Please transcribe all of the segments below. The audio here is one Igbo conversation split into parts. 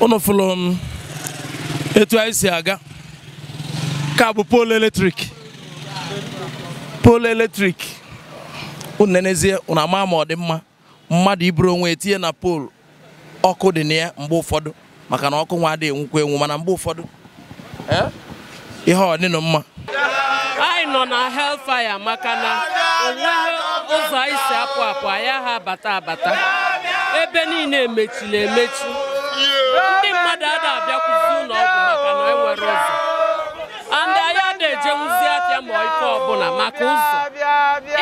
unu fụlụ um, etu anyị si aga ka bụ poolu eletrik Polu eletrik unu nenezie unu ama ma ọ dị mma mmadụ iburu onwe etinye na poolu ọkụ dị na ya mgbe ụfọdụ maka na ọkụ nwa adịghị enwukwa enwu mana mgbe ụfọdụ eh, ihe ọ dịnụ mma anyị nọ na Hellfire maka na onweghị ụzọ anyị si apụ apụ anyị agha abata abata ebe niile emechiri emechi ndị mmadụ ada abịakwuzi ụlọ ọgwụ maka na enwere ụzọ andị anya na-ejenwuzi apịa ma ike ọbụla maka ụzọ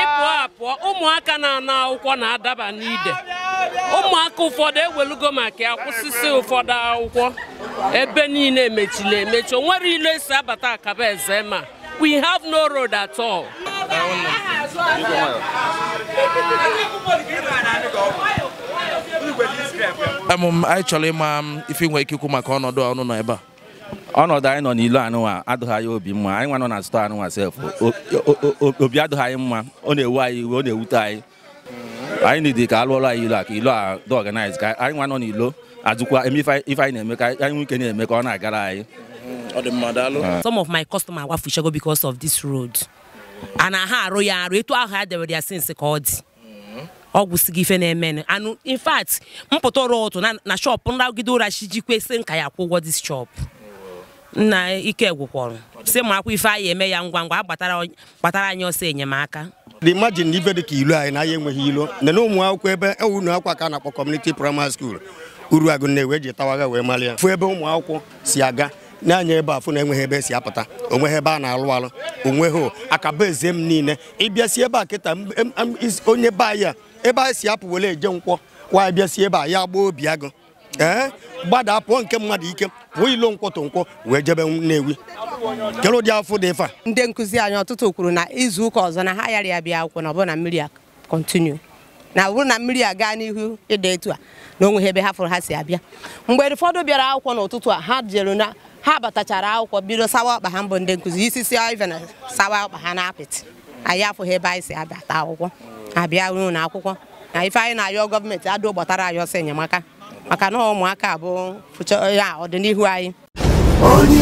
ịpụọ apụọ ụmụaka na-ana akwụkwọ na-adaba n'ide ụmụaka ụfọdụ ewelugo maka ya kwụsịsị ụfọdụ akwụkwọ ebe niile emechila emechi onwere ilu esi abata akaba eze ma we have no road at all. anyị chọrọ ịma ife nwe ike ikwu maka ọnọdụ ọnụ nọ ebe a ọnọdụ anyị nọ n'ilu a adụghị anyị obi mma anyị nwa nọ na anụ anụnwa sef obi adụghị anyị mma ọ na-ewu anyị iwe ọ na-ewute anyị anyị nidi ka alụọlụ anyị ilu a ka ilu a dị ọganiz ka anyị nwa nọ n'ilo ajụkwa eme ife anyị na-eme ka anyị nwike na-eme ka ọ na-agara anyị ah. some of my customers wafuchago because of this road and ha arụ ya arụ etu ahụ ha dewere ya since ka ọ dị ọgwụ si gị ife na-emenụ anụ in mpụta ọrụ ụtụ na shọpụ nragide ụra chi jikwe si nka ya akwụ ụgwọ dis shọpụ nna ike gwụkwọrọ si ma akwụ ife anyị eme ya ngwa ngwa gbatara anyị ọsọ enyemaka imagine na ibe dị ka ilu anyị na anya enweghị ilu nene n'ụmụ akwụkwọ ebe e unu akwa ka a na-akpọ kọmuniti praịmarị skuul uru agụ na-ewe wee malị ya fụ ebe ụmụ akwụkwọ si aga na-anya ebe afụ na enweghị ebe esi apụta onweghị ebe a na-alụ alụ onweghị akaba eze m niile ịbịasị ebe a kịta onye be anyị a ebe a si apụ were eje nkwọ kwa bịasi ebe a ya gbaa obi agụ ee gbada pụọ nke mmadụ ike pụọ ilo nkwọtụ nkwọ wee jebe Nnewi kelụ dị afọ dị ife a ndị nkụzi anyị ọtụtụ kwuru na izu ụka ọzọ na ha yara ya bịa akwụkwọ na ọbụna mmiri a kọntinu na ọ bụrụ na mmiri a gaa n'ihu ịda etu a na onweghị ebe ha fụrụ ha si abịa mgbe ụfọdụ bịara akwụkwọ n'ụtụtụ a ha jere na ha batachara akwụkwọ bido sawa ọkpa ha mbụ ndị nkụzi isisi ive na sawa ọkpa ha na-apịtị anyị afụghị ebe anyị si abata akwụkwọ abịa ruo na akwụkwọ na ife anyị na-ayọ gọọmenti adụ gbatara anyị ọsọ enyemaka maka na ụmụaka bụ ọdịnihu anyị